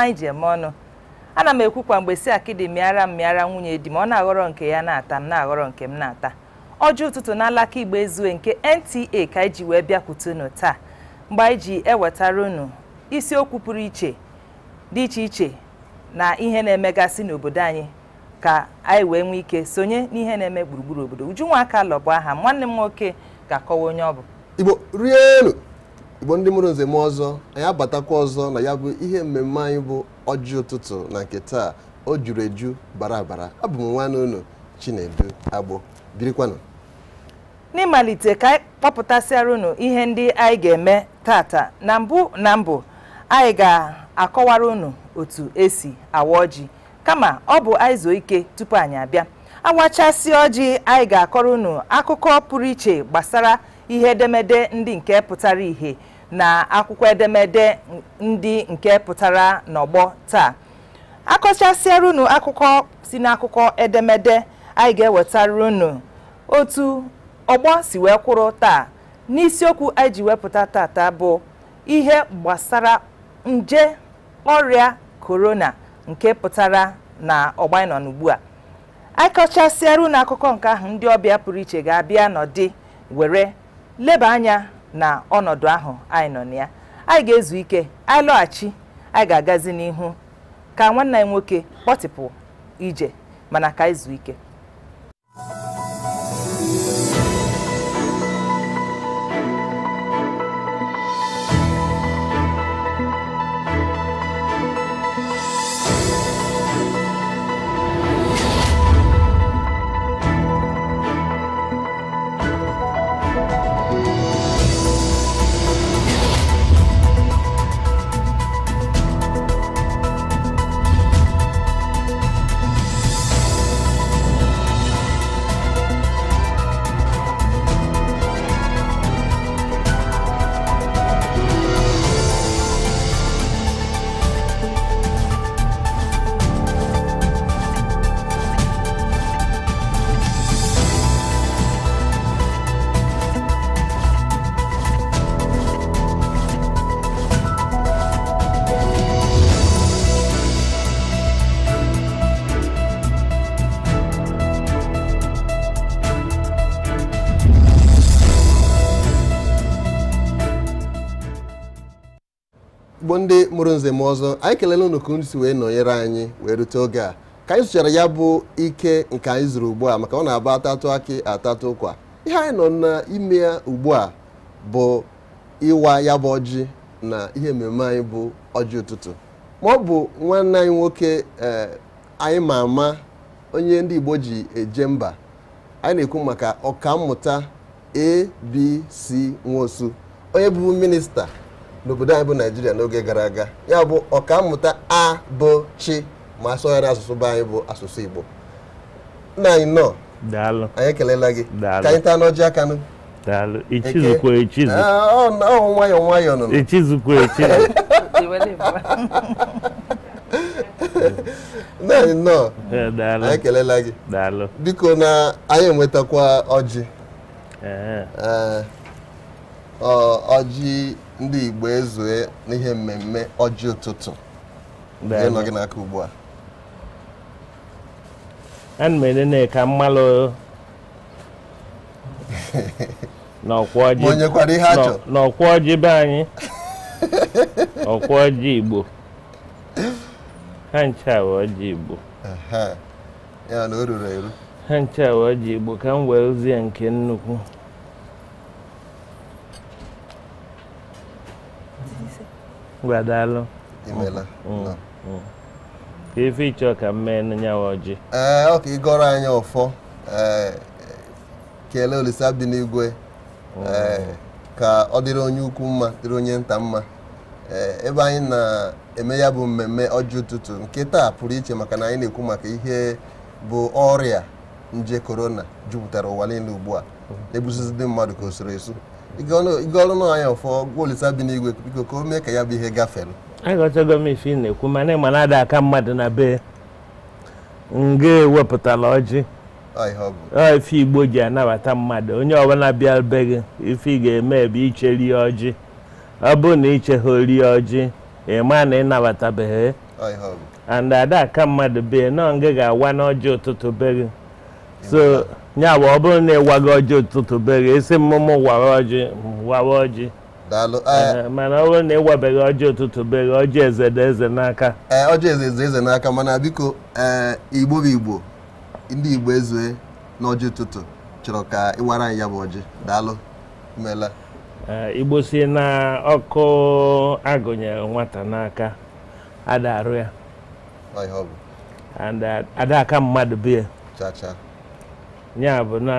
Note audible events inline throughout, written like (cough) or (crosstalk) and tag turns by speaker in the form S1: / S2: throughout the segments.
S1: anyị ji eme ọnụ ana m ekwukwa mgbe si akịdị mịara m mịara nwunye di m ọ na-aghọrọ nke ya na-ata m na-aghọrọ nke m na-ata ọjọọ ụtụtụ na alaka igba ezue nke nta ka anyị ji wee bịakwutenu taa mgbe anyị ji ewetara unu isiokwu pụrụ iche dị iche iche na ihe na-emegasị n'obodo anyị ka anyị wee nwee ike sonye n'ihe na-eme gburugburu obodo Ujunwa Akalọ lọbụ aha nwanne m nwoke ga-akọwa onye ọ bụ
S2: Igbo rie elu igbo ndị mụrụ nze m ọzọ anyị abatakwa ọzọ na ya bụ ihe mmemme anyị bụ ọjị ụtụtụ na nke taa o juru eju bara abara abụ m nwanne unu Chinedu Agbo birikwanụ
S1: n'ịmalite ka anyị kpọpụtasịara unu ihe ndị anyị ga-eme tata na mbụ na mbụ anyị ga-akọwara unu otu esi awa ọjị kama ọ bụ anyị ike tupu anyị abịa awachasị ọjị anyị ga-akọrọ unu akụkọ pụrụ iche gbasara ihe edemede ndị nke pụtara ihe na akwụkwọ edemede ndị nke pụtara n'ọgbọ taa akọchasịara unu akụkọ si n'akụkọ edemede anyị ga-ewetara unu otu ọgbọ si wee kwụrụ taa n'isiokwu anyị ji wepụta tata bụ ihe gbasara nje ọrịa korona nke pụtara na ọgba n'ugbu a anyị akụkọ nke ahụ ndị ọbịa pụrụ iche ga-abịa nọdị were leba anya na ọnọdụ ahụ anyị nọ na ya anyị ga-ezu ike anyị lọghachi anyị ga-agazi n'ihu ka nwanne anyị nwoke kpọtịpụ ije mana ka anyị zuo ike
S2: ndị mụrụ nze m ọzọ anyị kelele unu ka si wee nọnyere anyị wee rute oge a ka anyị sụchara ya bụ ike nke anyị zụrụ ugbu a maka ọ na-aba atatụ akị atatụ ụkwa ihe anyị nọ n'ime ya ugbu a bụ ịwa ya bụ ọjị na ihe mmemme anyị bụ ọjị ụtụtụ ma ọ bụ nwanne anyị nwoke eh, anyị ma ama onye ndị Igbo ji eje mba anyị na-ekwu maka ọkammụta ABC Nwosu onye bụ minista n'obodo anyị bụ naijiria n'oge gara aga ya bụ ọkammụta chi ma asọgharị asụsụ bụ anyị bụ asụsụ igbo nna anyị nọ anyị ekelela gị ka anyị taa n'ọjị aka nụ ah, ọ nwayọ nwayọ nụ (laughs) (laughs) nọ eh, anyị ekelela gị biko na anyị enwetakwa ọjị eh. Eh, ọjị ndị Igbo ezue n'ihe mmemme ọjị ụtụtụ nọ gị n'aka ugbu a ana m elele ka mmalụ
S3: n'ọkwa ọjị be anyị ọkwa ọjị Igbo ha ncha ọjị Igbo ha ncha ọjị Igbo ka m wee zie nke nnukwu Mgbadalu. Imela. Ka ife ịchọ ka mme mee ọjị.
S2: Ee ọ ịgọrọ anyị ọfọ kelee Olise Abdi n'igwe ka ọ dịrị onye ukwu mma dịrị onye nta mma ebe anyị na-eme ya bụ mmemme ọjị ụtụtụ nke taa pụrụ iche maka na anyị na-ekwu maka ihe bụ ọrịa nje korona jupụtara ụwa niile ugbu a na ndị mmadụ ka o soro esu ịgọrụ na ọnya ụfọ gwa Olisa bi n'igwe biko ka o mee ka ya bụ ihe gafere
S3: aghọtago m ife ị na-ekwu mana ịma na ada aka mmadụ na be nga ewepụtala ọjị ife igbo ji anabata mmadụ onye ọbụla bịa be gị ife ị ga-eme ebe iche rie ọjị ọ bụrụ na ichegha rie ọjị ịma na ịnabatabeghị and ada aka mmadụ be nọ nga ga-awa n'ọjị ụtụtụ be gị so nya bụ ọ bụrụ na ịwago ọjị ụtụtụ bere esi mmụmụ wara ọjị wara ọjị eh. mana ọ bụrụ na ịwabeghị ọjị ụtụtụ
S2: bere ọjị eze na eze n'aka eh, ọjị eze eze n'aka mana biko eh, igbo bụ igbo ndị igbo ezue n'ọjị ụtụtụ chọrọ ka ịwara anyị ya bụ ọjị daalụ mela igbo si na ọkụ agụnyere
S3: nwata n'aka ada arụ ya ada mmadụ bie chacha ya bụ na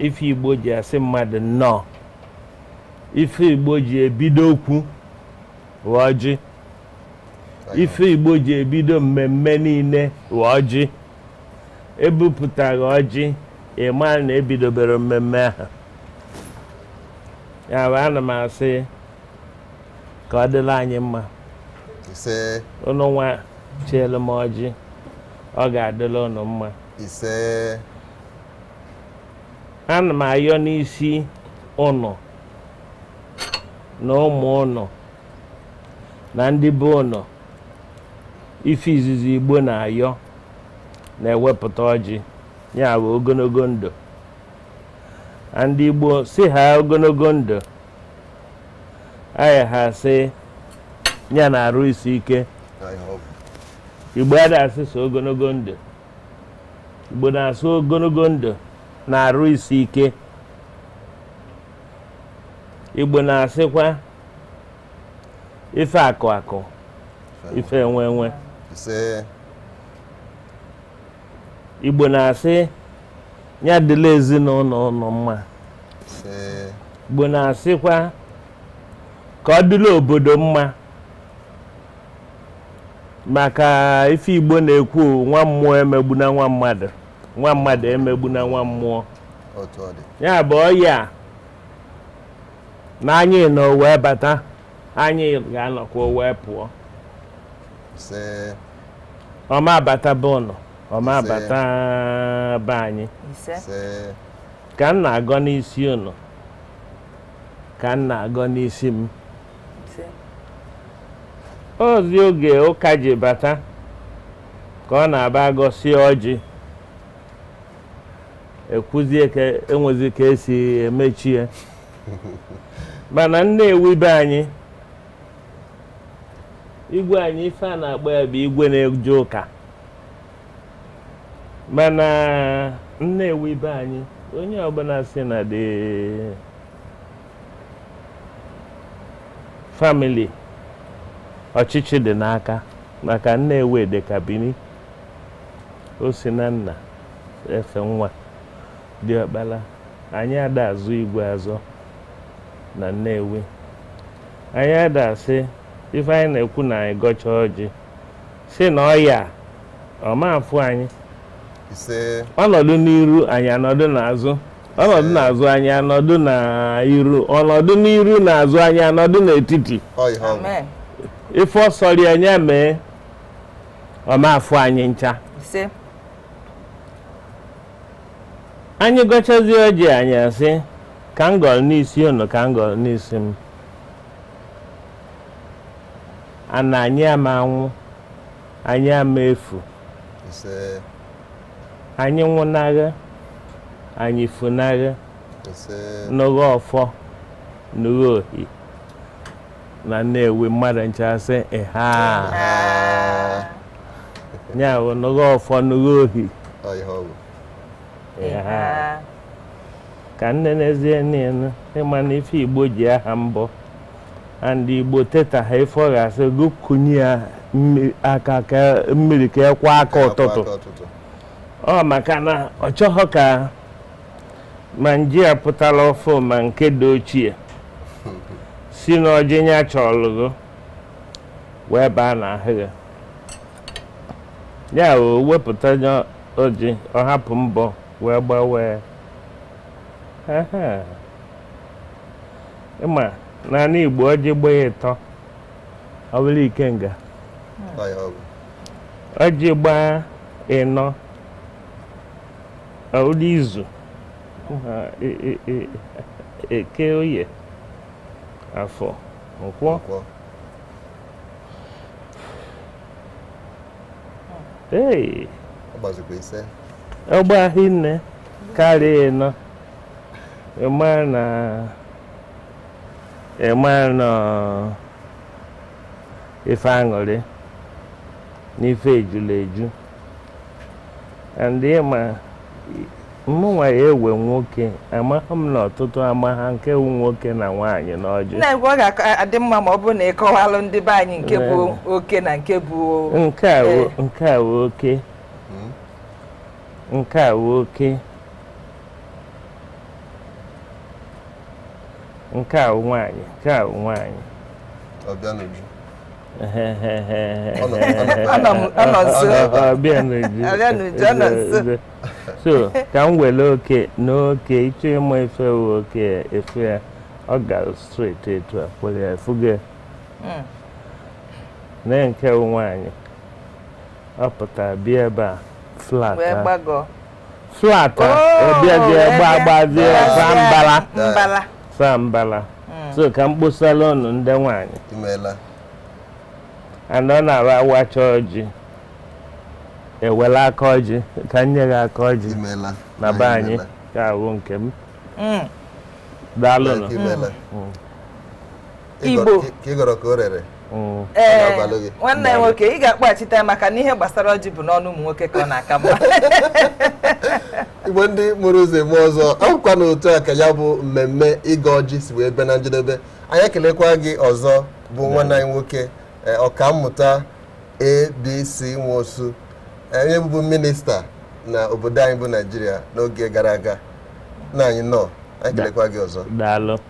S3: ife igbo ji asị mmadụ nnọọ ife igbo ji ebido okwu wee ọjị ife igbo ji ebido mmemme niile wee ọjị ebupụtaghị ọjị ịma na ebidobere mmemme ahụ ya bụ ana m asị ka ọ dịla anyị mma unu nwa chielu m ọjị ọ ga-adịla unu mma ana m ayọ n'isi ụnụ na ụmụ ụnụ na ndị be ụnụ ife izizi igbo na-ayọ na-ewepụta ọjị ya bụ ogologo ndụ ndị igbo si ha ogologo ndụ anyị ha si ya na-arụ isi ike igbo adasị so ogologo ndụ igbo na-asụ ogologo ndụ na-arụ isi ike igbo na-asịkwa ife akụ akụ ife enwe enwe igbo na-asị ya dịla ezinụlọ ụlọ mma igbo na-asịkwa ka ọ dịla obodo mma maka ife igbo na-ekwu nwa mmụọ emegbu na nwa mmadụ nwa mmadụ emegbu na nwa mmụọ ya bụ ọya na anyị nọ wee bata anyị ga-anọkwa wee pụọ ọma abata bụ ụnụ ọma abata be anyị ka m na-agọ n'isi ụnụ ka m na-agọ n'isi m ozi oge ụka ji bata ka ọ na-aba gosi ọjị ekwuzie ka enwezi ka esi emechi ya (laughs) mana nnewi ewube anyị igwe anyị ife a na-agba ya bụ igwe na-eje ụka mana nna ewube anyị onye ọbụla si na dị famili ọchịchị dị n'aka maka nnewi dị ka bini o si na nna efe nwa diọkpala anyị ada azụ igwe azọ na nnewi anyị ada asị ife anyị na-ekwu na anyị gọcha ọjị si na ọya ọmafụ anyị ọnọdụ n'iru anyị anọdụ n'azụ ọnọdụ n'azụ anyị anọdụ n'iru ọnọdụ n'iru n'azụ anyị anọdụ n'etiti ife ọsọrọ anyị mee ọmafụ anyị ncha anyị gọchazie ọjị anyị asị ka m gọrọ n'isi unu ka m gọrọ n'isi m ana anyị ama anwụ anyị ama efu anyị nwụnagha anyị funagha n'ụgha ọfọ n'ụgha ohi na nnewi mmadụ nchasị ha ya bụ n'ụgha ọfọ n'ụgha ohi Eh, eh. eh. ka nne n'ezie niile ịma na ife igbo ji aha mbọ and igbo teta ha ife ọ ga-asị ya aka ka mmiri ka ekwa aka ụtụtụ ọ maka na ọ chọghọ ka ma nji ya pụtara ọfụ ma nke dị ochie si n'ọjị ya chọlụgo wee baa n'ahịa ya wepụta ọ hapụ mbọ wee gbawee ịma naanị igbo ọjị gbaa ya ịtọ ọ bụrụ ikenga ọjị gbaa ịnọ ụdị izu e, e, e, eke oye afọ nkwọ ee
S2: ọ gbazikwa ise
S3: ọgba e hinne karịa ịnọ e ịma na ịma e na ife aṅụrị n'ife ejula eju ma ịma nwa ya ewe nwoke amaghị m na ọtụtụ amagha nke wu nwoke na nwaanyị n'ọjị
S1: na-egwu ọ ga-adị mma ma ọ bụrụ na ịkọwalụ ndị be anyị nke bụ oke na nke bụ nke
S3: a bụ oke nke a wụ oke nke a wụ nwaanyị nke a wụ nwaanyị so ka m were oke na oke ịchọ ịma efe wụ oke efe ya ọ gara straight etu a kwere ya fuge na hmm. nke wụ nwaanyị ọ pụtara bịa ebe a flat eh? flat ọbịazie eh? oh, gbagbazie eh? sambala sambala hmm. so ka m kposala ụnụ ndị nwanyị ana ọ na awa awacha ọjị ewela aka ọjị ka m nye gị aka ọjị na be anyị ka ahụ nke m
S2: hmm. daalụnụ hmm. igbo ka ị gọrọ ka o rere ee eh, nwanne nwoke
S1: ị ga-akpaghachite ya maka na ihe gbasara ọjị bụ n'ọnụ ụmụ nwoke ka ọ na-aka mma
S2: (laughs) igbo ndị mụrụ ụzọ eme ọzọ ọkwa na otu a ka ya bụ mmemme ịga ọjị si wee bịa na njedebe anyị ekelekwa gị ọzọ bụ nwanne anyị nwoke eh, ọkammụta abc nwosu eh, onye bụbu minista na obodo anyị bụ naijiria n'oge gara aga na anyị nọ anyị kelekwa gị ọzọ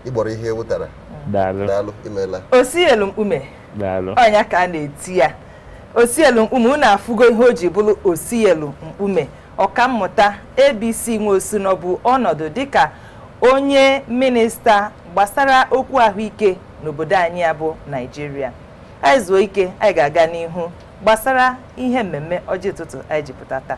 S2: ịgbọrọ ihe e wụtara daalụ imeela o sielu mkpume onya
S1: ka a na-eti ya osielu mkpume unu afụgo ihe o ji bụrụ osielu mkpume ọkammụta abc nweosino bụ ọnọdụ dịka onye minista gbasara okwu ahụike n'obodo anyị ya bụ naijiria anyị zuo ike anyị ga-aga n'ihu gbasara ihe mmemme ọjị ụtụtụ anyị jipụta taa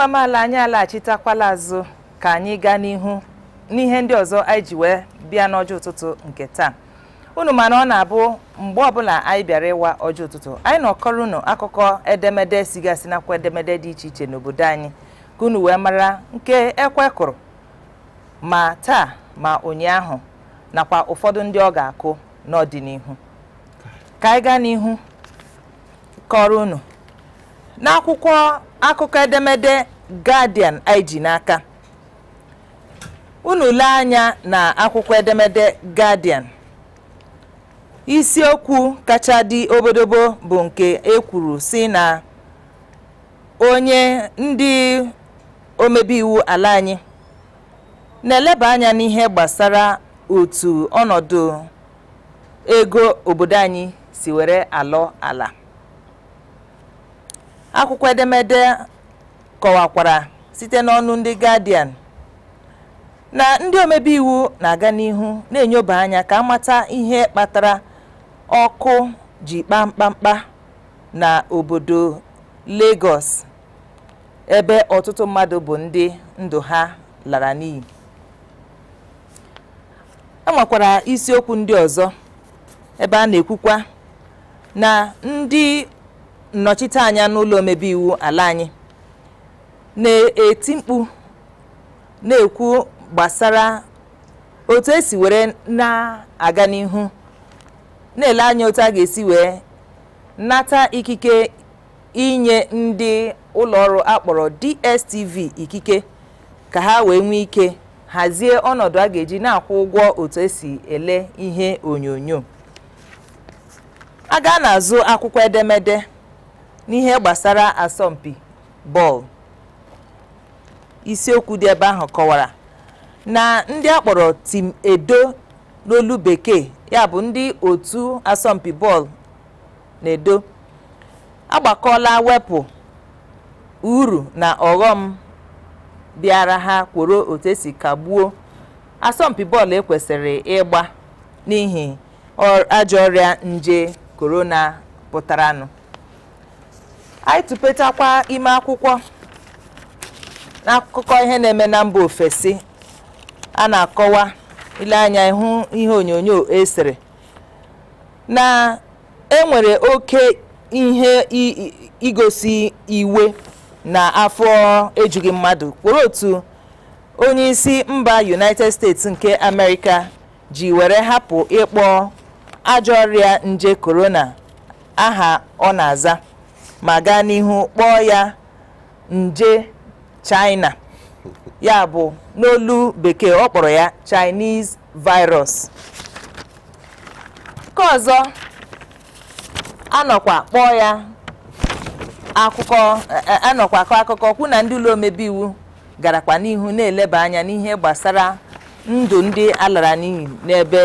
S1: ịgba amaala anyị alaghachitakwala azụ ka anyị gaa n'ihu n'ihe ndị ọzọ anyị ji wee bịa n'ọjọọ ụtụtụ nke taa unu mana ọ na-abụ mgbe ọbụla anyị bịara ịwa ọjọọ ụtụtụ anyị nọkọrọ unu akụkọ edemede sigasị nakwa edemede dị iche iche n'obodo anyị ka unu wee mara nke ekwe kụrụ ma taa ma ụnyaahụ nakwa ụfọdụ ndị ọ ga-akụ n'ọdịnihu ka anyị gaa n'ihu kọrọ unu n'akwụkwọ akụkọ edemede Guardian anyị ji n'aka unu lee anya na akwụkwọ edemede Guardian isiokwu kacha dị obodobo bụ nke ekwuru kwuru si na onye ndị omebi iwu ala anyị na-eleba anya n'ihe gbasara otu ọnọdụ ego obodo anyị si were alọ ala akwụkwọ edemede kọwakwara site n'ọnụ ndị Guardian na ndị omebe iwu na-aga n'ihu na-enyoba anya ka amata ihe kpatara ọkụ ji kpaa mkpamkpa na obodo Lagos ebe ọtụtụ mmadụ bụ ndị ndụ ha lara n'iyi e isiokwu ndị ọzọ ebe a na-ekwukwa na ndị nnọchiteanya n'ụlọ omebe iwu ala anyị na-eti mkpu na-ekwu gbasara otu esi were na-aga n'ihu na-ele anya otu a ga-esi wee nata ikike inye ndị ụlọ ọrụ akpọrọ DSTV ikike ka ha wee nwee ike hazie ọnọdụ a ga-eji na-akwụ ụgwọ otu esi ele ihe onyonyo a na-azụ akwụkwọ edemede n'ihe gbasara asọmpi bọọlụ isiokwu dị ebe ahụ kọwara na ndị akpọrọ tim edo n'olu bekee ya bụ ndị otu asọmpi bọọlụ na-edo agbakọla wepụ uru na ọghọm bịara ha kworo otu esi kagbuo asọmpi bọọlụ ekwesịrị ịgba n'ihi ajọ ọrịa nje korona pụtaranụ anyị tụpetakwa ime akwụkwọ n'akụkọ ihe na-eme na mba ofesi a na-akọwa ile anya ịhụ ihe onyonyo esere na enwere oke ihe igosi iwe na afọ ejughị mmadụ kwụrụ otu onye isi mba united states nke amerịka ji were hapụ ịkpọ ajọ ọrịa nje korona aha ọ na-aza ma gaa n'ihu kpọọ ya nje china ya bụ n'olu bekee ọ kpọrọ ya chinese virus nke ọzọ anọkwa kpọọ ya akụkọ e, e, anọkwa akọ akụkọ kwụ na ndị ụlọ omebe iwu garakwa n'ihu na-eleba anya n'ihe gbasara ndụ ndị alara n'iyi n'ebe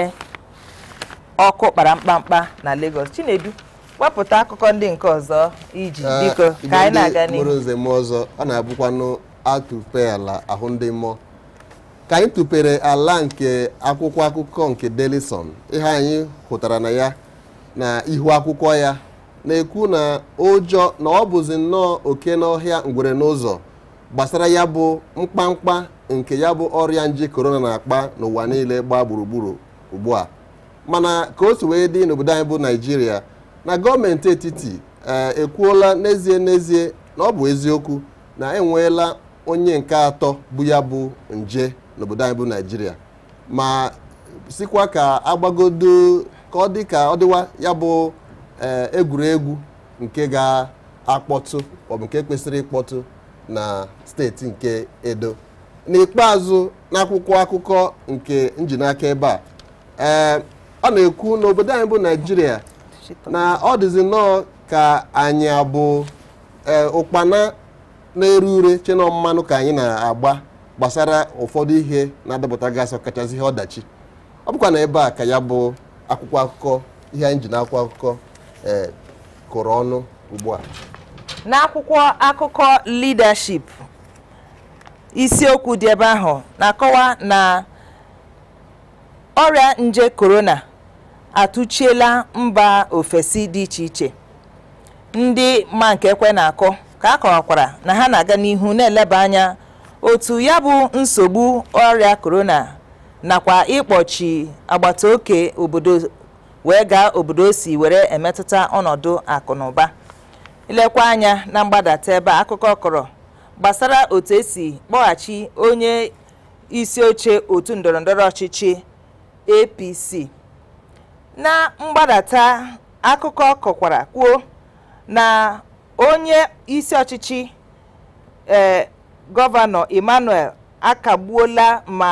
S1: ọkụ kpara mkpamkpa na Lagos Chinedu wepụta akụkọ ndị nke ọzọ iji ah, biko ka anyị na-aga n'ihu mụrụ
S2: nze ọzọ ọ na-abụkwanụ atụpe ala ahụ ndị mmụọ ka anyị tụpere ala nke akwụkwọ akụkọ nke delison ihe anyị hụtara na ya na ihu akwụkwọ ya na-ekwu na ụjọ na ọ bụzi nnọọ oke n'ọhịa ngwere n'ụzọ gbasara ya bụ mkpamkpa nke ya bụ ọrịa nje korona na-akpa n'ụwa niile gbaa gburugburu ugbu a mana ka o si wee dị n'obodo anyị bụ naijiria na gọọmenti etiti eh, ekwuola n'ezie n'ezie na ọ bụ eziokwu na enweela onye nke atọ bụ ya bụ nje n'obodo anyị bụ naijiria ma sikwa ka agbagodo ka ọ dị ka ọ dịwa ya bụ eh, egwuregwu nke ga-akpọtụ maọbụ nke kwesịrị ịkpọtụ na steeti nke edo n'ikpeazụ n'akwụkwọ akụkọ nke njinaka ebe a eh, ọ na-ekwu na obodo anyị bụ naijiria na ọ dịzi nnọọ ka anyị abụ e, ụkpana na-ere ure chenọ mmanụ ka anyị na-agba gbasara ụfọdụ ihe na-adapụta gasị ọkachasị ihe ọdachi ọ bụkwa na ebe a ka ya bụ akwụkwọ akụkọ ihe anyị ji na akwụkwọ akụkọ e, kụrụ ọnụ ugbu a
S1: n'akwụkwọ akụkọ leadership isiokwu dị ebe ahụ na-akọwa na ọrịa nje korona atụchiela mba ofesi dị iche iche ndị ma nke ekwe na akụ ka a kọwakwara na ha na-aga n'ihu na-eleba anya otu ya bụ nsogbu ọrịa korona nakwa ịkpọchi agbata oke obodo wee gaa obodo si were emetụta ọnọdụ akụ lekwa anya na mgbadata ebe akụkọ kọrọ gbasara otu esi kpọghachi onye isi oche otu ndọrọndọrọ ọchịchị APC na mgbadata akụkọ kọkwara kwuo na onye isi ọchịchị ee gọvanọ emmanuel akagbuola ma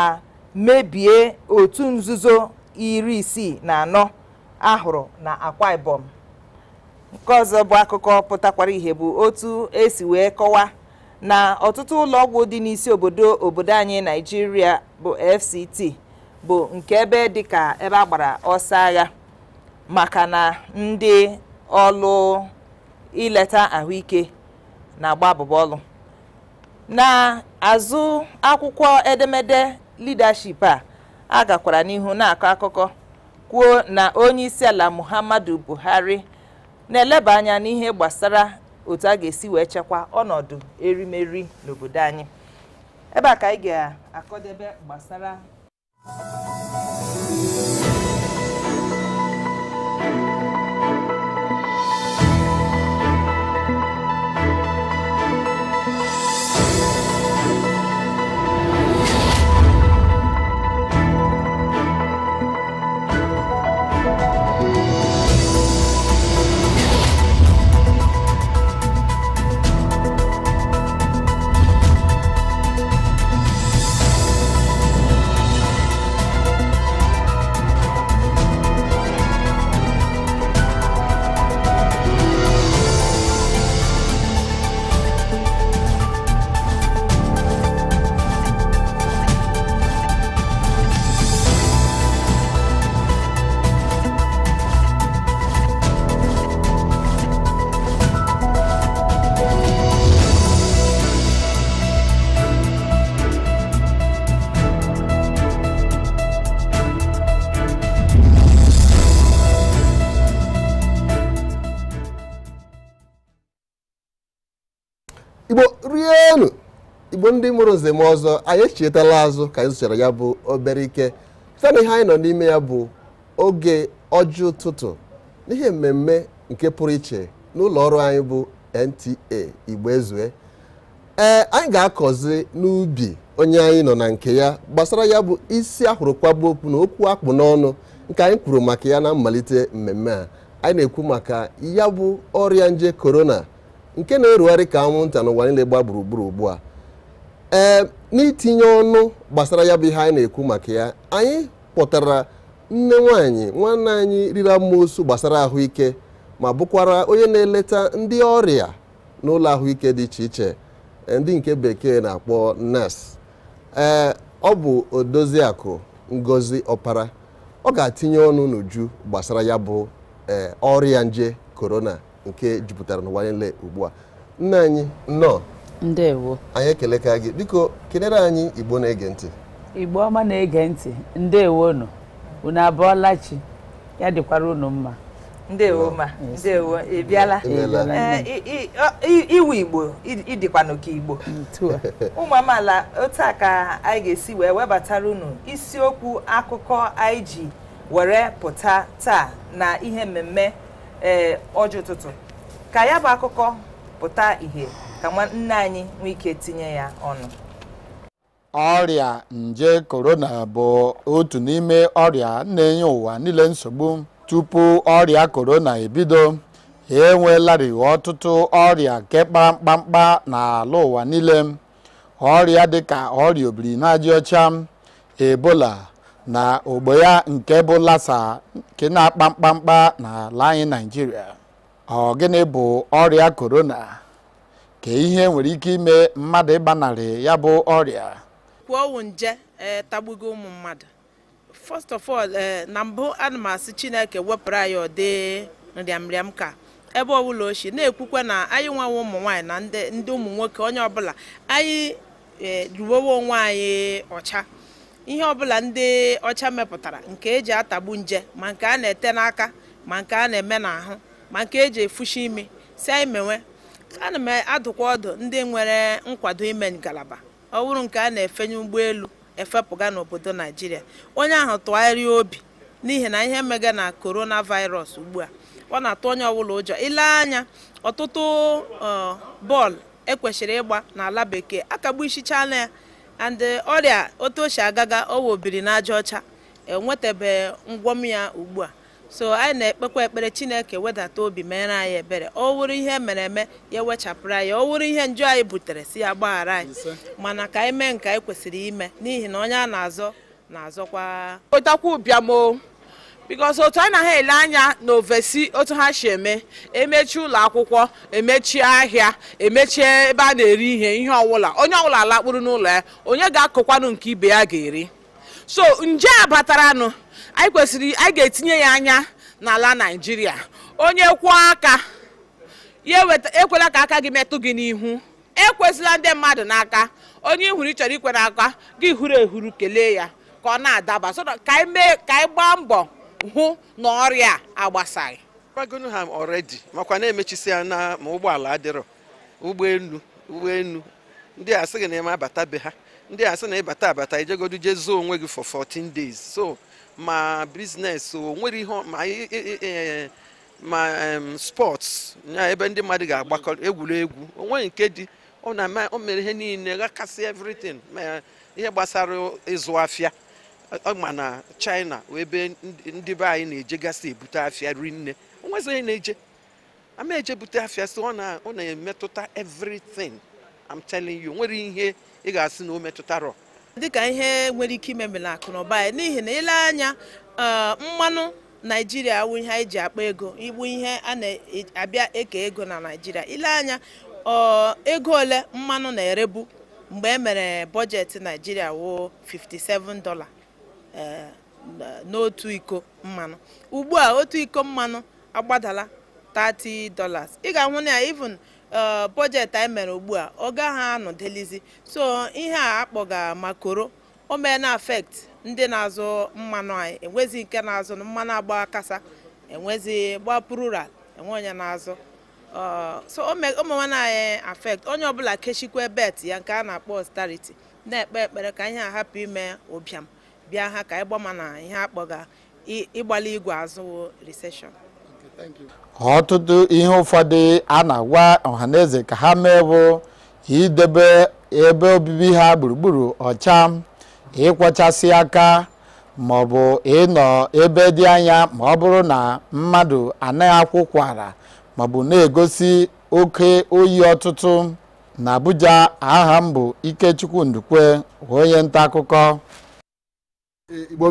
S1: mebie otu nzuzo iri isii na anọ ahụrụ na akwa ibom nke ọzọ bụ akụkọ pụtakwara ihe bụ otu esi wee kọwaa na ọtụtụ ụlọ ọgwụ dị n'isi obodo obodo anyị naijiria bụ fct bụ nke ebe dịka ebe a gbara ọsọ agha maka na ndị ọlụ ileta ahụike na-agba ọlụ na-azụ akwụkwọ edemede leadership a a gakwara n'ihu na-akọ akụkọ kwuo na onye isi ala muhammadu buhari na-eleba anya n'ihe gbasara otu a ga-esi wee chekwa ọnọdụ erimeri n'obodo anyị ebe a ka ga-akọdebe gbasara Música
S2: ndị mụrụ nze m ọzọ anyị echetala azụ ka anyị zụchara ya bụ obere ike site ihe anyị nọ n'ime ya bụ oge ọjọọ ụtụtụ n'ihe mmemme nke pụrụ iche n'ụlọ ọrụ anyị bụ NTA Igbo Ezue ee anyị ga-akọzi n'ubi onye anyị nọ na nke ya gbasara ya bụ isi ahụrụkwagbu okwu na okwu akpụ n'ọnụ nke anyị kwuru maka ya na mmalite mmemme a anyị na-ekwu maka ya bụ ọrịa nje korona nke na-erugharị ka anwụnta n'ụwa niile gba gburugburu ugbu a ee n'itinye ọnụ gbasara ya bụ ihe anyị na-ekwu maka ya anyị kpọtara nne nwaanyị nwanne anyị riri amoosu gbasara ahụike ma bụkwara onye na-eleta ndị ọrịa n'ụlọ ahụike dị iche iche e, ndị nke bekee na-akpọ nurse ee ọ bụ odoziakụ ngozi ọpara ọ ga-atinye ọnụ n'uju gbasara ya bụ e, ọrịa nje korona nke jupụtara n'ụwa niile ugbu a nne anyị nọ ndewo anyị ekeleka gị biko kelere anyị igbo na-ege ntị
S4: igbo ọma na-ege ntị ndewo nụ unu abụọla chi ya dịkwara unu mma
S2: ndewo ma
S1: ndewo ị bịala eh, iwu igbo ịdịkwanụ ka igbo mm, (laughs) ụmụ amaala otu a ka anyị ga-esi wee webatara unu isiokwu akụkọ anyị ji were pụta taa na ihe mmemme ee eh, ọjị ụtụtụ ka ya bụ akụkọ pụta ìhè ka nne anyị nwee ike tinye ya ọnụ
S5: ọrịa nje korona bụ otu n'ime ọrịa na-enye ụwa niile nsogbu tupu ọrịa korona ebido enweelarị ọtụtụ ọrịa nke kpamkpamkpa n'ala ụwa niile ọrịa dịka ọrịa obirinajaọcha ebola na ogbo ya nke bụ lasa nke na-akpa mkpamkpa n'ala anyị naijiria ọ gịnị bụ ọrịa korona ka ihe nwere ike ime mmadụ ịgbanarị ya bụ ọrịa
S6: kwuo nje e, tagbugo ụmụ mmadụ first of all e, na mbụ ana chineke wepụrụ anyị ọdị nrịamrịam ka ebe ọbụla ochie na-ekwukwe na anyị nwewe ụmụ nwaanyị na ndị ụmụ nwoke onye ọbụla anyị ruwewe onwe anyị ọcha ihe ọbụla ndị ọcha mepụtara nke eji atagbu nje ma nke a na-ete n'aka ma nke a na-eme n'ahụ ma nke eji efushi imi si anyị mewe ana m adụkwa ọdụ ndị nwere nkwado ime ngalaba ọ bụrụ nke a na-efenye ụgbọelu efepụga n'obodo naijiria onye ahụ tụgharịa obi n'ihi na ihe mega na korona virus ugbu a ọ na-atụ onye ọbụla ụjọ ile anya ọtụtụ bọọlụ ekwesịrị ịgba n'ala bekee akagbu isichaala ya and ọrịa otu o si agaga o wobiri n'aja ọcha enwetabe ngwọm ya ugbu a so anyị na-ekpekwa ekpere chineke wedata obi mere anyị ebere ọ wụrụ ihe mere eme ya ewechapụrụ anyị ọ wụrụ ihe nju anyị butere si ya gbaghara anyị mana ka anyị mee nke anyị kwesịrị ime n'ihi na onye a na-azọ na-azọkwa otakwa ụbịamo bikos otu a na ha ele anya na ovesi otu ha si eme emechi ụlọ akwụkwọ emechie ahịa emechie ebe a na-eri ihe ihe ọwụla onye ọwụla lakpụrụ n'ụlọ ya onye ga-akọkwanụ nke ibe ya ga-eri so nje a bataranụ anyị kwesịrị anyị ga-etinye ya anya n'ala naijiria onye kwụọ aka ya ekwela ka aka gị metụ gị n'ihu ekwesịla ndị mmadụ n'aka onye ihuru ịchọrọ ikwere aka gị huru ehuru kelee ya ka ọ na-adaba ka anyị gbaa mbọ hụ na ọrịa agbasaghị kwagonu ha ọredi
S4: makwa na-emechisi ya na ma ụgbọala adịrọ ụgbọelu ụgbọelu ndị a sị gị na eme abata be ha ndị a sị na ịbata abata ijegodu jee onwe gị for 14 days so ma biznes o nwere ihe ma spọts ya ebe ndị mmadụ ga-agbakọ egwuregwu onwe nke dị ọ na o mere ihe niile gakasị evritin ma ihe gbasara ịzụ afịa ma na china ebe ndị be anyị na-ejegasị ebute afịa rinne onwezighị na-eje
S6: ama ejebute afịa si ọ na-emetụta evritin I'm telling you nwere ihe ị ga-asị na o metụtarọ dịka ihe nwere ike ime mela akụ na ụba n'ihi na ile anya eh, mmanụ naijiria awụ ihe anyị ji akpa ego igbu ihe a na-abịa eke ego na naijiria ile anya eh, ego ole mmanụ na-erebu mgbe e mere bọjetị naijiria wụ 57 dọla eh, n'otu iko mmanụ ugbu a otu iko mmanụ agbadala 30 dollars ị ga-ahụ na even Uh, bọjetị anyị mere ugbu a ọ gaghị anọdelizi so ihe a akpọga makoro o mee na afekt ndị na-azụ mmanụ anyị enwezi nke na-azụ mmanụ agba kasa enwezi gba plural enwe onye na-azụ uh, so ụmụnwana anyị afekt onye ọbụla kechikwa bet ya nke a na-akpọ stariti na-ekpe ekpere ka ihe a hapụ ime ụbịam bịa ha ka ịgbama na ihe akpọga ịgbali igwe azụ riseshọn
S5: ọtụtụ ihe ụfọdụ a na-agwa ọhaneze ka ha mee bụ idebe ebe obibi ha gburugburu ọcha ịkwọchasị aka maọbụ ịnọ ebe dị anya ma ọ bụrụ na mmadụ anaghị akwụkwara ma ọ na-egosi oke oyi ọtụtụ na Abuja aha m bụ Ikechukwu Ndukwe onye nta akụkọ Igbo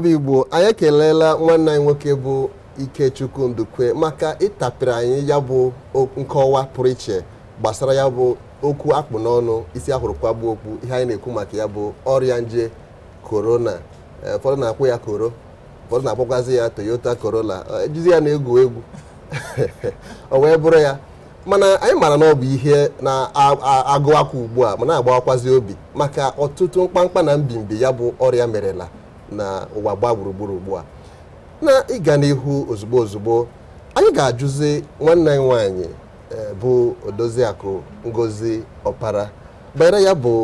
S2: anyị nwanne anyị nwoke bụ Ikechukwu Ndukwe maka ịtapịrị anyị ya bụ nkọwa pụrụ iche gbasara ya bụ okwu akpụ n'ọnụ isi ahụrụ gbuo okwu ihe anyị na-ekwu maka ya bụ ọrịa nje korona e, ụfọdụ na-akwụ ya koro ụfọdụ na-akpọkwazi ya Toyota Corolla ejizi ya na-egwu egwu (laughs) o wee bụrụ ya mana anyị maara na ọ bụ ihe na-agụwakwa ugbu a ma na-agbawakwazi obi maka ọtụtụ mkpamkpa na mbimbi ya bụ ọrịa merela na ụwa gbaa gburugburu ugbu a na ịga n'ihu ozugbo ozugbo anyị ga-ajụzi nwanne anyị nwanyị eh, bụ odoziakụ ngozi ọpara banyere ya bụ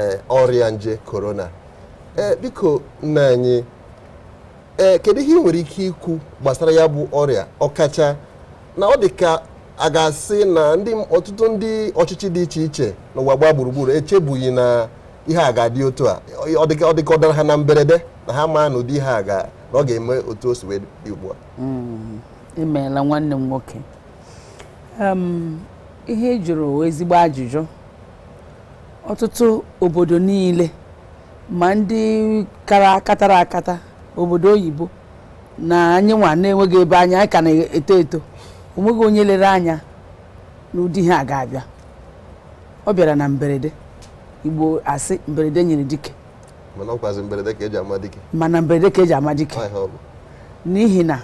S2: eh, ọrịa nje korona eh, biko nna anyị kedu ihe ị nwere ike ikwu gbasara ya bụ ọrịa ọkacha na ọ dị ka a ga-asị na ọtụtụ ndị ọchịchị dị iche iche n'ụwa gbaa gburugburu echebughị na ihe a ga otu a ọ dị ọ dara ha na mberede na ha maa na ụdị ihe a na ọ ga-eme otu o si wee dị ugbu a
S4: mm-hmm. imeela nwanne m nwoke um, ihe e jụrụ ezigbo ajụjụ ọtụtụ obodo niile ma ndị kara katara akata obodo oyibo na anyị nwa na-enweghị ebe anya anyị ka na-eto eto onweghị onye lere anya ụdị ihe a ga-abịa ọ bịara na mberede igbo asị mberede nyere dike
S2: mana ọkwazi mberede ka eji ama dike
S4: mana mberede ka e ji ama n'ihi na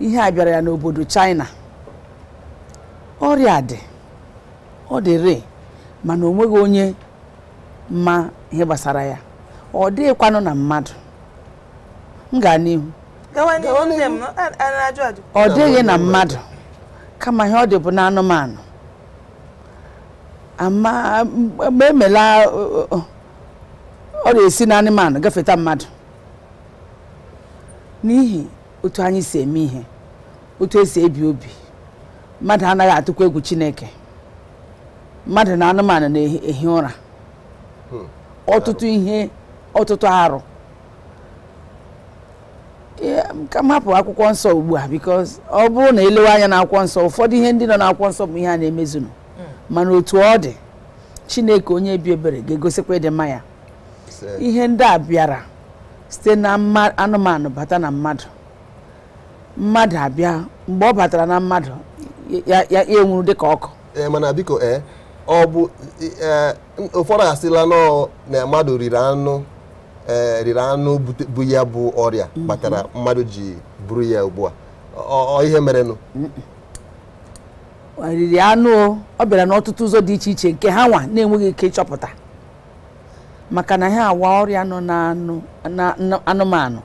S4: ihe a bịara ya n'obodo China ọrịa dị ọ dị rịị mana onweghi onye ma ihe gbasara ya ọ dịghịkwanụ na mmadụ m gaa n'ihu
S1: ọ dịghị na mmadụ
S4: kama ihe ọ dị bụ na anụmanụ ama emela ọ na-esi na anụmanụ gafeta mmadụ n'ihi otu anyị si eme ihe otu esi ebi obi mmadụ anaghị atụkwa egwu chineke mmadụ na anụmanụ na-ehi ụra hmm. ọtụtụ ihe ọtụtụ arụ ka m hapụ akwụkwọ nsọ ugbu a because ọ bụrụ na elewe anya na akwụkwọ nsọ ụfọdụ ihe ndị nọ na akwụkwọ nsọ bụ ihe a na-emezunu hmm. mana otu ọ dị chineke onye bi ebere ga-egosikwa ịdị mma ihe ndị a bịara site na anụmanụ bata na mmadụ mmadụ abịa mgbe ọ batara na mmadụ ya
S2: enwuru dị ka ọkụ e, mana biko ee ọ bụ e, e, ụfọdụ asịla na mmadụ riri anụ riri anụ bụ ya bụ ọrịa mhm. kpatara mmadụ ji buru ya ugbu a ọ ihe merenụ
S4: riri ọ bịara n'ọtụtụ ụzọ dị iche iche nke ha nwa na-enweghị ike ịchọpụta maka na ha awa ọrịa nọ anụmanụ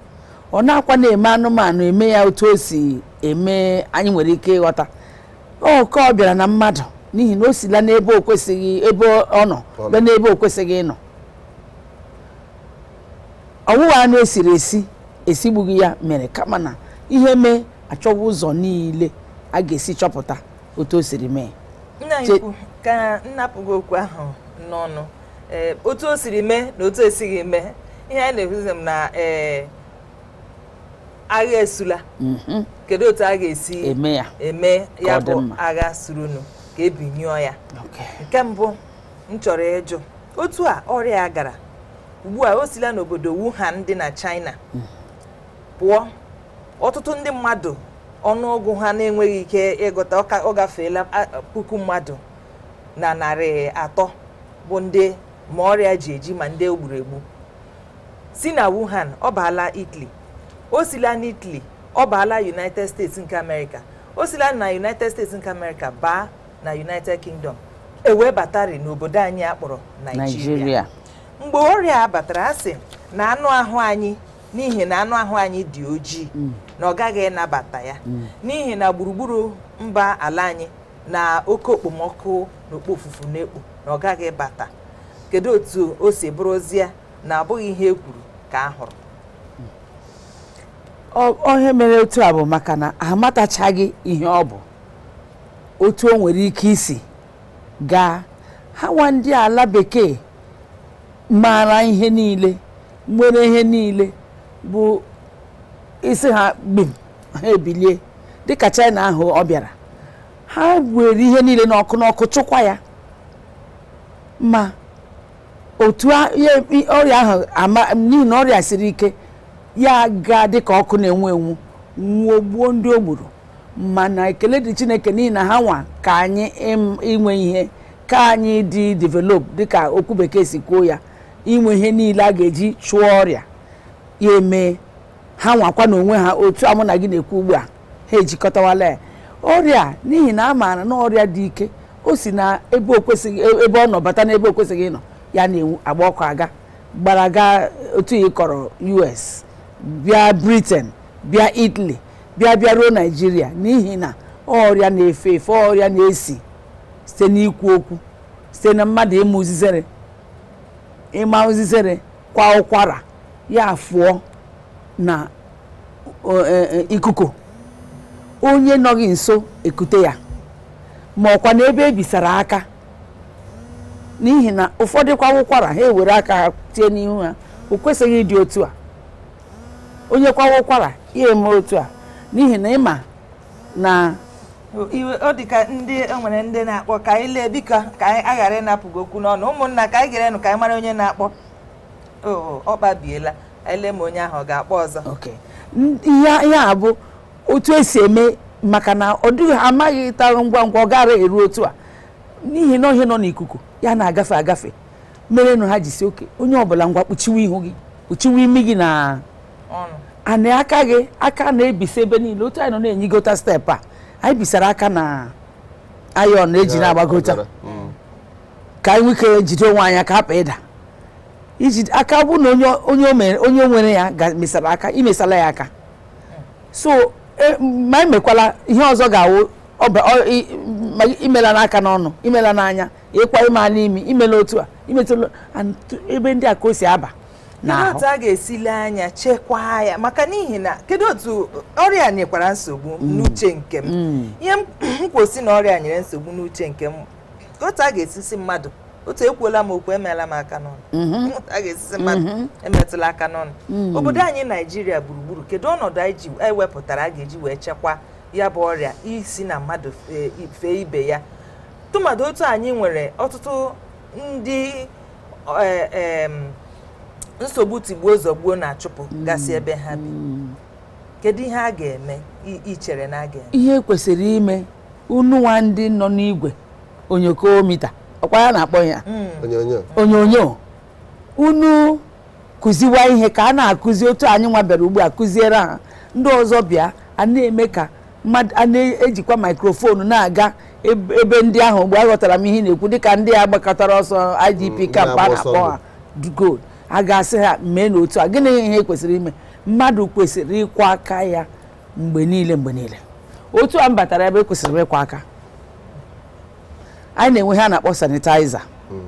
S4: ọ na-akwa na-eme anụmanụ eme ya otu o si eme anyị nwere ike ịghọta oke ọ bịara na mmadụ n'ihi na o sila n'ebe o kwesịghị ebe ọ nọ n'ebe o kwesịghị ịnọ ọwụwa anụ esiri esi esigbughị ya mere kama na ihe mee achọwa ụzọ niile a ga-esi chọpụta otu o siri mee
S1: ka okwu ahụ n'ọnụ Eh, otu o siri mee na otu esighị mee ihe anyị na-ekwuzi m na ee eh, agha esula mhm. kedu otu a ga-esi eme ya bụ agha surunu ka ebinyụọ ya nke mbụ m chọrọ ịjụ otu a ọrịa gara ugbu a o sila n'obodo Wuhan dị na China mhm. pụọ ọtụtụ ndị mmadụ ọnụọgụ ha na-enweghị ike ịgụta ọ gafeela puku mmadụ na narị atọ bụ ndị ma ọrịa ji eji ma ndị egburu egbu si na Wuhan ọ baala Italy o sila na Italy ọ baala United States nke America o sila na United States nke America baa na United Kingdom ewe batari n'obodo anyị akpọrọ naijiria. mgbe ọrịa batara asị na anụ ahụ anyị n'ihi na anụ ahụ anyị dị ojii mm. na ọ gaghị ịnabata ya mm. n'ihi na gburugburu mba ala anyị na oke okpomọkụ na ofufu na-ekpo na ọ gaghị bata kedu otu o si bụrụzie na abụghị ihe e kwuru ka a hụrụ
S4: ohe mere otu a bụ maka na amatachaghị ihe ọ bụ otu o nwere ike isi gaa ha nwa ndị ala bekee maara ihe niile nwere ihe niile bụ isi ha gbim ha ebilie dịka China ahụ ọ bịara ha were ihe niile n'ọkụ n'ọkụ chụkwa ya ma otu ọrịa ahụ ama n'ihi na ọrịa siri ike ya ga dị ka ọkụ na-enwu enwu nwụọ gbuo ndị o gburu mana ekele dị chineke n'ihi na ha nwa ka anyị inwe ihe ka anyị dị develop dịka okwu bekee si kwuo ya inwe ihe niile a ga-eji chụọ ọrịa ya emee ha nwakwa na onwe ha otu amụ na gị na-ekwu ugbu a ha ejikọtawala ya ọrịa n'ihi na a maara na ọrịa dị ike o si na ebe ọ nọ bata n'ebe o kwesịghị ịnọ ya na agba ọkụ aga gbara gaa otu ihe kọrọ US bịa Britain bịa Italy bịa bịa ruo Naịjirịa n'ihi na ọrịa na-efe efe ọrịa na-esi site n'ikwu okwu site na mmadụ ịma uzizere ịma kwa ụkwara ya fụọ na e, e, ikuku onye nọghị nso ekute ya ma ọkwa na ebe ebisara aka n'ihi na ụfọdụ kwa ụkwara ha ewere aka ha tie n'ihu ha o kwesịghị ịdị otu a onye kwa ụkwara ya eme otu a n'ihi na ịma na
S1: iwe ọ dị ka ndị enwere ndị na-akpọ ka anyị lee biko ka anyị aghara ịnapụgo okwu n'ọnụ ụmụnna ka anyị gerenụ ka anyị mara onye na-akpọ ọ kpabiela ele ma onye ahụ ọ ga-akpọ ọzọ
S4: ihe ya abụ otu esi eme maka na ọ dịghị amaghị ịtarụ ngwa ngwa ọ gara eru otu a n'ihi na ọhịa nọ n'ikuku ya na-agafe agafe mere nụ ha ji si oke onye ọbụla ngwa kpuchiwe ihu gị kpuchiwe imi gị na anị aka gị aka na-ebisa ebe niile otu anyị nọ na-enyigota steepụ a anyị bisara aka na ayọn eji na-agbagota mm. ka anyị nwike jide onwe anya ka hapụ ịda iji aka bụ na onye nwere ya mesara aka imesala ya aka mm. so e, ma emekwala ihe ọzọ ga-awụ ma imela n'aka n'ọnụ imela n'anya ịkwa e ịma n'imi imela otu a imetụla ebe ndị a ka o si aba n'ahụ a ga-esile anya chekwaa ya maka n'ihi na
S1: kedu otu ọrịa nyekwara nsogbu mm. n'uche nke m mm. ihe mkwosi na ọrịa nyere nsogbu n'uche nke m otu a ga-esisi mmadụ otu ekwuola m okwu emeela m aka n'ọnụ mm-hmm. a ga-esisi mmadụ mm-hmm. emetụla aka n'ọnụ mm. obodo anyị naijiria gburugburu kedu ọnọdụ anyị e wepụtara a ga-eji wee chekwaa ya bụ ọrịa isi na mmadụ fee ibe ya tụmadụ otu anyị nwere ọtụtụ ndị e, e, nsogbu tigbuo zọgbuo na-achụpụ mm. gasị ebe ha bi kedu ihe a ga-eme ichere na a ga-eme
S4: ihe kwesịrị ime ununwa ndị nọ n'igwe onyokomita ọkwa ya na-akpọ ya mm. onyonyo unu kụziwa ihe ka a na-akụzi otu anyị nwa bịara ugbu a kụziere ha ndị ọzọ bịa a na-eme ka mmadụ a na-ejikwa maikrofonu na-aga ebe ndị ahụ mgbe aghọtara m ihe na-ekwu dịka ndị a gbakọtara ọsọ idp mm, kamp a na-akpọ ha gold a ga-asị ha mee n'otu a gịnị ihe kwesịrị ime mmadụ kwesịrị ịkwa aka ya mgbe niile mgbe niile otu a m batara ebe kwesịrị ịkwa aka anyị na-enwe ha na-akpọ sanitaiza mm.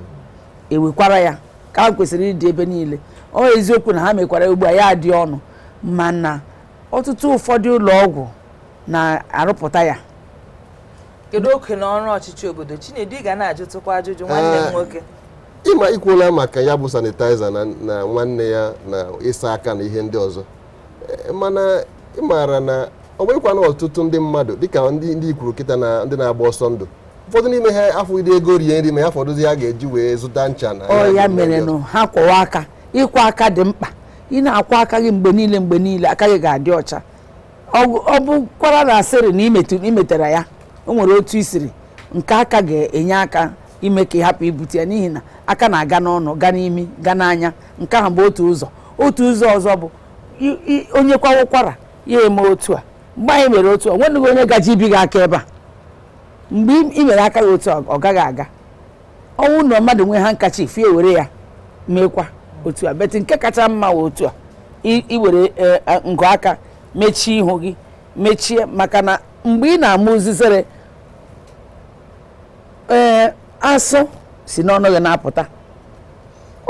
S4: ewekwara ya ka kwesịrị ịdị ebe niile ọ eziokwu na ha mekwara ugbu a ya adị ọnụ mana ọtụtụ ụfọdụ ụlọ ọgwụ na-arụpụta ya
S1: kedu oke na ọrụ ọchịchị obodo Chinedu ị ga na-ajụtụkwa ajụjụ nwanne m ah, nwoke
S2: ịma ikwuola maka ya bụ sanitaiza na nwanne ya na ịsa aka na ihe ndị ọzọ eh, mana ịmara na ọ nwerekwana ọtụtụ ndị mmadụ dịka ndị ikwuru kịta na ndị na-agba ọsọ ndụ ụfọdụ n'ime ha afọ ide ego rie nri ma ya fọdụzi ha ga-eji wee zụta ncha na ya mere
S4: nụ ha kwọwa aka ịkwa aka dị mkpa ị na akwa aka gị mgbe niile mgbe niile aka gị ga-adị ọcha ọ bụkwara na asịrị na imetara ya o nwere otu isiri nke aka ga-enye aka ime ka ịhapụ ibute ya n'ihi na aka na-aga n'ọnụ ga n'imi ga n'anya nke ahụ bụ otu ụzọ otu ụzọ ọzọ bụ onye kwawa ụkwara ya eme otu a mgbe anyị e mere otu a nwenụghị onye gaji ibi gị aka ebe a mgbe ị mere aka ya otu a ọ gaghị aga ọnwụ na mmadụ nwee ha nkachi fie were ya meekwa otu a beti nke kacha mma wee otu a iwere e, e, ngụ aka mechie ihu gị mechie maka na mgbe ị na-amụ uzizere ee asụ si n'ọnụ gị na-apụta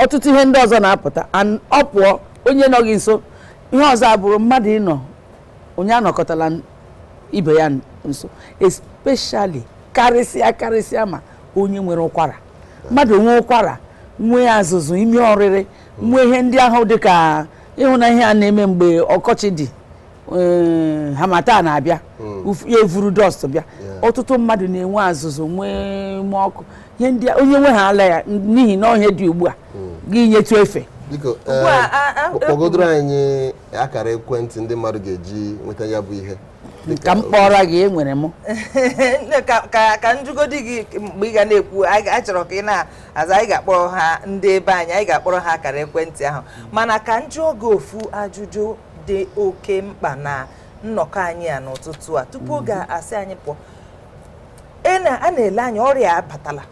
S4: ọtụtụ ihe ndị ọzọ na-apụta ọ pụọ onye nọ gị nso ihe ọzọ abụrụ mmadụ ịnọ onye anọkọtala ibe ya nso especially karịsịa karịsịa ma onye nwere ụkwara mmadụ nwee ụkwara nwee azụzụ ime ọrịrị nwee ihe ndị ahụ dịka ka na ihe a na-eme mgbe ọkọchị dị Eh, hamata na-abịa hmm. ya evuru dọst bịa ọtụtụ mmadụ na-enwe azụzụ nwee ume ọkụ ihe ndị onye nwe ha ala ya n'ihi na ọhịa dị ugbu a hmm. gị
S2: nyetụ efe biko kpọgodoro eh, e, anyị akara ekwentị ndị mmadụ ga-eji nweta ya bụ ihe ka m kpọrọ gị enwere m (laughs) ka
S1: njugodi gị mgbe ị ga na-ekwu a chọrọ ka ị na-aza anyị ga-akpọrọ ha ndị ebe anyị anyị ga-akpọrọ ha akara ekwentị ahụ hmm. mana ka njụ oge ofu ajụjụ dị oke mkpa na nnọkọ anyị a n'ụtụtụ a tupu oge asị anyị pụọ e a na-ele anya ọrịa abatala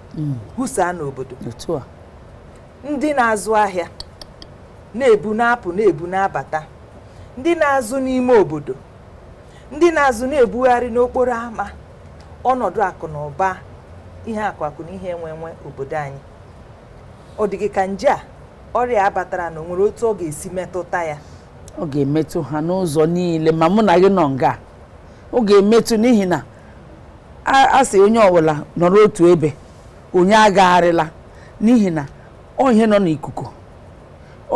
S1: hụsaa hmm. n'obodo ndị na-azụ ahịa na-ebu na-apụ na-ebu na-abata ndị na-azụ n'ime obodo ndị na-azụ na-ebugharị n'okporo ámá ọnọdụ akụ na ụba ihe akụ akụ na ihe enwe obodo anyị ọ dịghị ka nje a ọrịa abatara na o nwere otu ọ ga-esi metụta ya
S4: ọ ga-emetụ ha n'ụzọ niile ma mụ na gị nọ nga ọ ga-emetụ n'ihi na a sị onye ọbụla nọrọ otu ebe onye agagharịla n'ihi na ọhịa nọ n'ikuku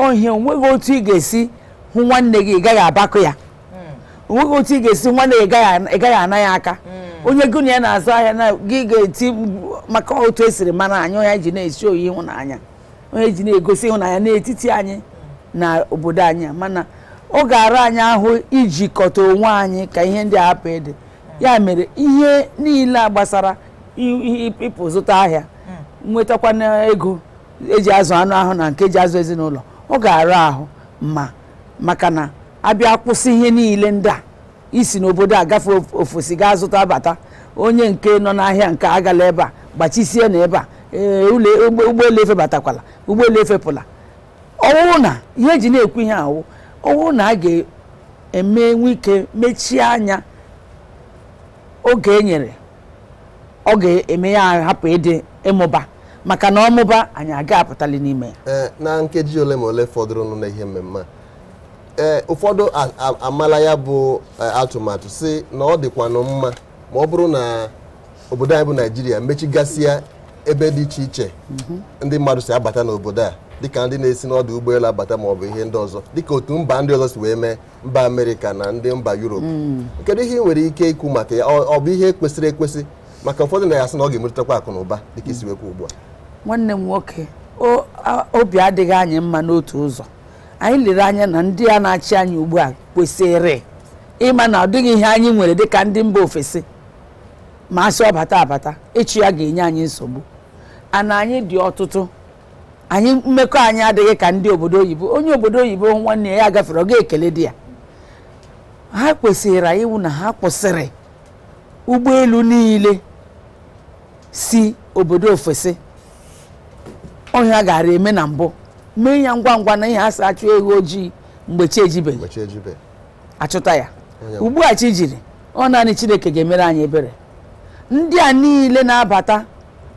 S4: ọhịa onweghị otu ị ga-esi hụ nwanne gị ị gaghị ya hmm. onweghị otu ị ga-esi nwanne gị ị gaghị ana ya aka hmm. onye gị na ya na-azụ ahịa na gị ga-eti maka otu esiri mara anyị onye ji na-esi oyi ịhụnanya onye ji na-egosi ịhụnanya n'etiti anyị na obodo anyị mana ọ ga ara anyị ahụ ijikọta onwe anyị ka ihe ndị a hapụ ịdị ya mere ihe niile gbasara ịpụ zụta ahịa hmm. nwetakwana ego eji azụ anụ ahụ na nke eji azụ ezinụlọ ọ ga ara ahụ ma maka na abịa kwụsị ihe niile ndị a isi n'obodo a gafee ofesi gaa zụta bata onye nke nọ n'ahịa nke agala ebe a gbachisie na ebe a ee ụgbọelu efebatakwala ụgbọelu efepụla ọwụwụ na ihe eji na-ekwu ihe ahụ ọnwụ na a ga emenwu ike mechie anya oge e nyere ọ ga-eme ya hapụ ịdị ịmụba maka na ọmụba anyị aga apụtali n'ime
S2: ya eh, na nkeji ole ma ole fọdụrụ n'ihe mmemme eh, ụfọdụ amala ya bụ eh, atụmatụ si na ọ dịkwa mma ma ọ bụrụ na obodo anyị bụ naijiria mechigasịa ebe dị iche iche mhm. ndị mmadụ si abata n'obodo a dịka ndị na-esi n'ọdụ ụgbọelu abata ma bụ ihe ndị ọzọ dịka otu mba ndị ọzọ si wee mee mba amerịka na ndị mba yuropu mm. kedu ihe nwere ike ikwu maka ya ọ bụ ihe kwesịrị ekwesị maka ụfọdụ na ya sị na ọ ga-emerụtakwa akụ na ụba dịka isi ugbu a
S4: nwanne m nwoke obi adịghị anyị mma n'otu ụzọ anyị lere anya na ndị a na-achị anyị ugbu a kwesịrị ịma na ọ dịghị ihe anyị nwere dịka ndị mba ofesi ma asị ọbata abata ịchụ ya ga-enye anyị nsogbu ana anyị dị ọtụtụ anyị mmekọ anyị adịghị ka ndị obodo oyibo onye obodo oyibo nwanne ya gafere ọ ga-ekele di ya ha kwesịrị iwu na ha kwụsịrị ụgbọelu niile si obodo ofesi ọhịa gara eme na mbụ mee ya ngwa ngwa na ihe asa achụ ego ojii mgbe chi achụta ya ugbu a chi jiri ọ naanị chineke ga-emere anyị ebere ndị a niile na-abata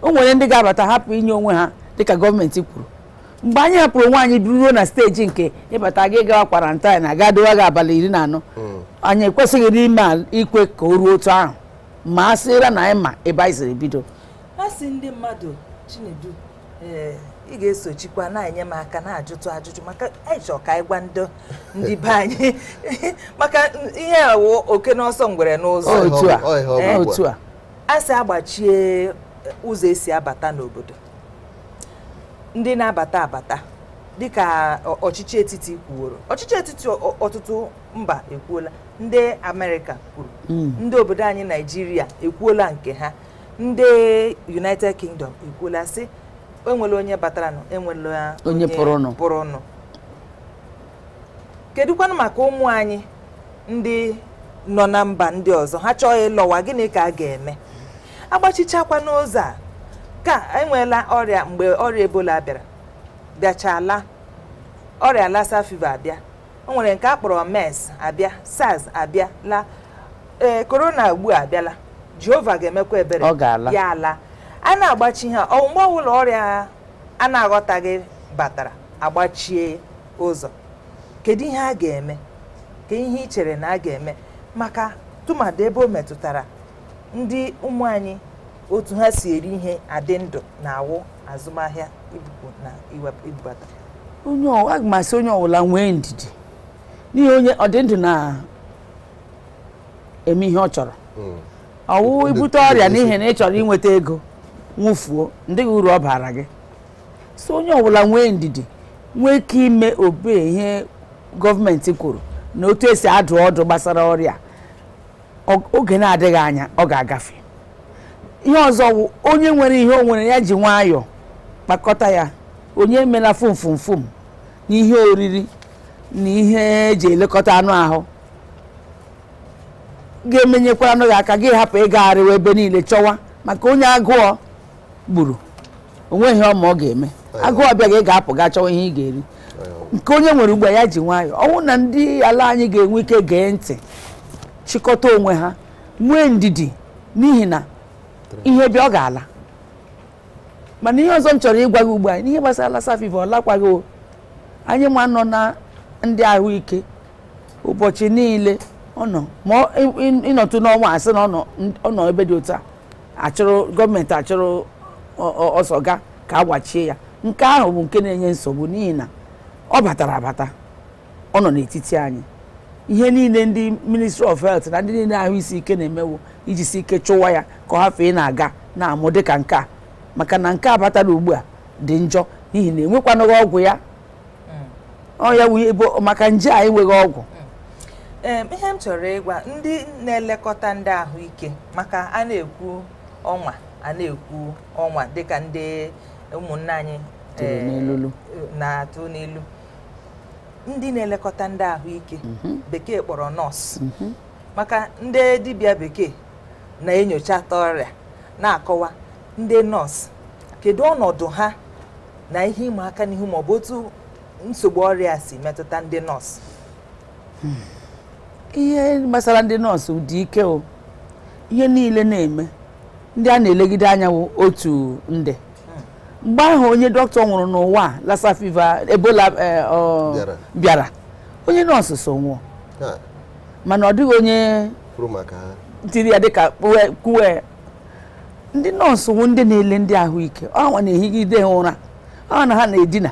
S4: o nwere ndị ga-abata hapụ inye onwe ha dịka gọọmenti kwuru mgbe anyị hapụrụ nwaanyị ruo na steji nke ịbata gị gawa kwarantin aga dowa gị abalị iri na anọ hmm. anyị ekwesịghị n'ime ikwe ka o ruo otu ahụ ma a sịra na anyị ma ebe anyị siri bido
S1: a ndị mmadụ chinedu eh, ị ga-esochikwa na-enye m aka na-ajụtụ ajụjụ maka anyị ka anyị gwa ndị be anyị (laughs) maka ihe awụ oke n'ọsọ ngwere n'ụzọ otu a a sị agbachie ụzọ esi abata n'obodo ndị na-abata abata dịka ọchịchị etiti kwuoro ọchịchị etiti ọtụtụ mba ekwuola ndị Amerịka kwuru hmm. ndị obodo anyị Naịjirịa ekwuola nke ha ndị United Kingdom ekwuola sị enwela onye batara nụ enwela onye pụrụnụ kedụkwanụ maka ụmụ anyị ndị nọ na mba ndị ọzọ ha chọọ ịlọwa gịnị ka a ga-eme agbachichakwa n'ụzọ a nke a enweela ọrịa mgbe ọrịa ebola bịara bịachala ọrịa lassa fever abịa o nwere nke a kpọrọ mers abịa sars abịa la ee korona ugbu a abịala jehova ga-emekwa ebere ya ala a na-agbachi ha mgbe ọbụla ọrịa a na-aghọtaghị batara agbachie ụzọ kedu ihe a ga-eme ka ihe ị chere na a ga-eme maka tụmadị ebe o metụtara ndị ụmụ anyị otu ha si eri ihe adị ndụ na-awụ azụmahịa ibupu na ibubata
S4: aga m asị onye ọbụla nwee ndidi n'ihe onye ọdịndụ na-eme ihe ọ chọrọ hmm. ọwụ ibute ọrịa n'ihi na ị chọrọ inweta ego nwụfuo ndị gị uru ọ bara gị so onye ọbụla nwee ndidi nwee ike ime obe ihe gọọmenti kwuru na otu esi adụ ọdụ gbasara ọrịa oge na-adịghị anya ọ ga-agafe ihe ọzọ wụ onye nwere ihe onwere nwere ya ji nwayọọ kpakọta ya onye emela fomfomfom na ihe oriri na ihe eji elekọta anụ ahụ ga-emenyekwara anụ gị aka gị hapụ ịgagharịwa ebe niile chọwa maka onye agụọ gburu onweghị ọma ọ ga-eme agụọ bịa gị ga-apụ gaa chọwa ihe ị ga-eri nke onye nwere a ya ji nwayọọ ọnwụ na ndị ala anyị ga-enwe ike gee ntị chịkọta onwe ha nwee ndidi n'ihi na ihe bịa ọ ga-ala mana ihe ọzọ m chọrọ ịgwa gị ugbu a n'ihe gbasara safiva ọ lakwaghị o anyị ma nọ na ndị ahụike ụbọchị niile ọ nọ ma ịnọtụ n'ọnwa asị na ọ nọ ebe dị otu a achụrụ gọọmenti achụrụ ọsọ ga ka agbachie ya nke ahụ bụ nke na-enye nsogbu n'ihi na ọ batara abata ọ nọ n'etiti anyị ihe niile ndị ministry of health na ndị niile ahụ isi ike na-emewo iji si ike chụwa ya ka ọ ị na-aga na-amụ dịka nke a maka na nke a batara ugbu a dị njọ n'ihi na enwekwanụghị ọgwụ ya mm. ọ ya maka nje a enweghị ọgwụ
S1: mm. ihe m chọrọ ịgwa ndị na-elekọta ndị ahụike maka a na-ekwu ọnwa a ekwu ọnwa dịka ndị ụmụnna anyị eh, na-atụ n'elu. ndị na-elekọta ndị ahụike mhm. bekee kpọrọ nọọsụ mhm. maka ndị dibịa bekee na enyocha atọ ọrịa na-akọwa ndị nọọsụ kedu ọnọdụ ha na ihe ịma aka n'ihu maọbụ otu nsogbu ọrịa si metụta ndị nọọsụ
S5: hmm.
S4: ihe gbasara ndị nọọsụ dị ike o niile na-eme ndị a na-elegide anya otu nde mgbe ahụ onye dọkịta nwụrụ n'ụwa lassa fever ebola eh, bịara onye nọọsụ so nwụọ mana ọ dịghị onye tiri ya dịka kwuwe ndị nọọsụ nwụ ndị na-ele ndị ahụike ọnwa na-ehigide ụra ọnwa na ha na-edina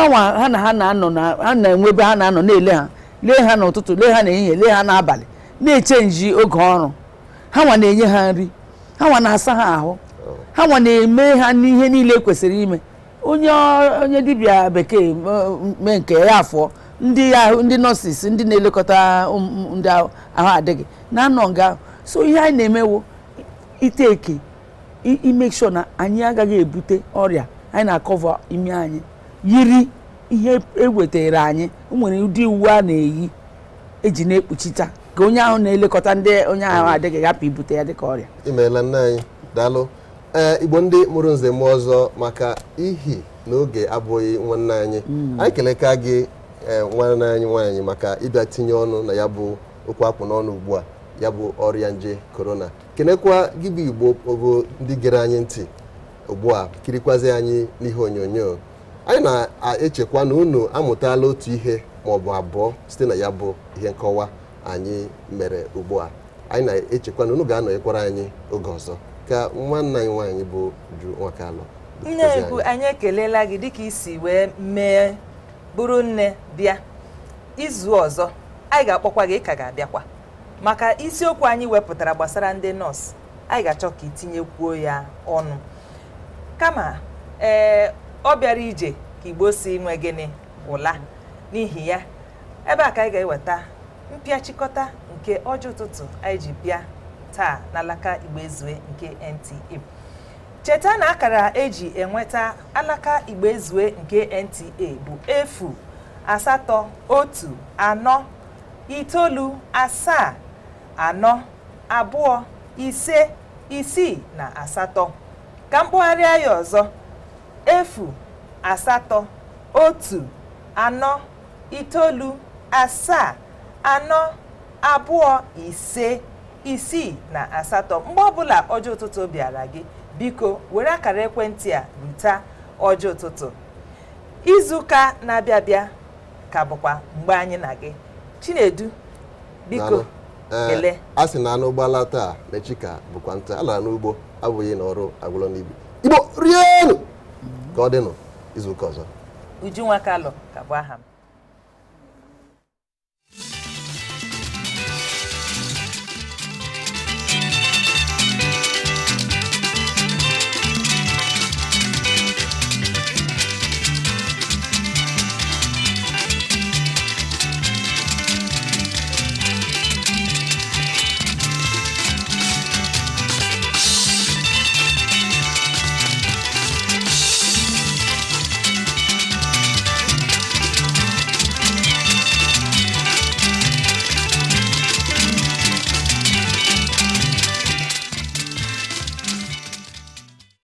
S4: ọnwa ha na ha na-anọ ha na-enwe ebe ha na-anọ na-ele ha lee ha n'ụtụtụ lee ha n'ehihie lee ha n'abalị na-echenji oge ọrụ ha nwa na-enye ha nri ha nwa na-asa ha ahụ ha nwa na-eme ha n'ihe niile kwesịrị ime onye onye dibịa bekee mee nke ya afọ ndị ahụ ndị nọọsis ndị na-elekọta ndị ahụ adịghị na-anọ nga so ihe anyị na-emewo iteke ime sure na anyị agaghị ebute ọrịa anyị na-akọva imi anyị yiri ihe ewetara anyị nwere ụdị uwe a na-eyi eji na-ekpuchita ka
S2: onye ahụ na-elekọta ndị onye ahụ adịghị hapụ ibute ya dịka ọrịa imeela nne anyị daalụ E, igbo ndị mụrụ nze mmụọ ọzọ maka ihi n'oge abụghị nwanne anyị hmm. anyị keleka gị e, nwanne anyị nwaanyị maka ịbịa tinye ọnụ na ya bụ okwu akpụ n'ọnụ ugbu a ya bụ ọrịa nje korona kenekwa gị bụ igbo ogo ndị gere anyị ntị ugbu a kirikwazi anyị n'ihe onyonyo anyị na-echekwa na unu amụtala otu ihe maọbụ abụọ site na ya bụ ihe nkọwa anyị mere ugbu a anyị na-echekwa na unu ga-anọnyekwara anyị oge ọzọ ka nwa anyị nwaanyị bụ Uju Nwakalụ nne ku
S1: anyị ekelela gị dịka isi wee mee bụrụ nne bịa izu ọzọ anyị ga-akpọkwa gị ka ga-abịakwa maka isiokwu anyị wepụtara gbasara ndị nọọsụ anyị ga-achọ ka itinyekwuo ya ọnụ kama ee ọ bịara ije ka igbo si nwe gịnị ụla n'ihi ya ebe a ka anyị ga-eweta mpịachịkọta nke ọjị ụtụtụ anyị ji bịa taa n'alaka Igbo Ezue nke NTA cheta na akara eji enweta alaka Igbo Ezue nke NTA bụ efu asatọ otu anọ itoolu asaa anọ abụọ ise isii na asatọ ka mkpụgharịa ya ọzọ efu asatọ otu anọ itoolu asaa anọ abụọ ise isii na asatọ mgbe ọbụla ọjọ ụtụtụ bịara gị biko were akara ekwentị a rute ọjọ ụtụtụ izuụka na-abịa abịa ka bụkwa mgbe anyị na gị chinedu
S2: biko eh, kele a sị na anụ ụgbọala taa mechika bụkwa nta a lara n'ugbo abụghị na ọrụ agwụlọ n'ibi igbo rienụ ka ọ dịnụ izuụka ọzọ
S1: Ujunwa Kalọ ka bụ aha m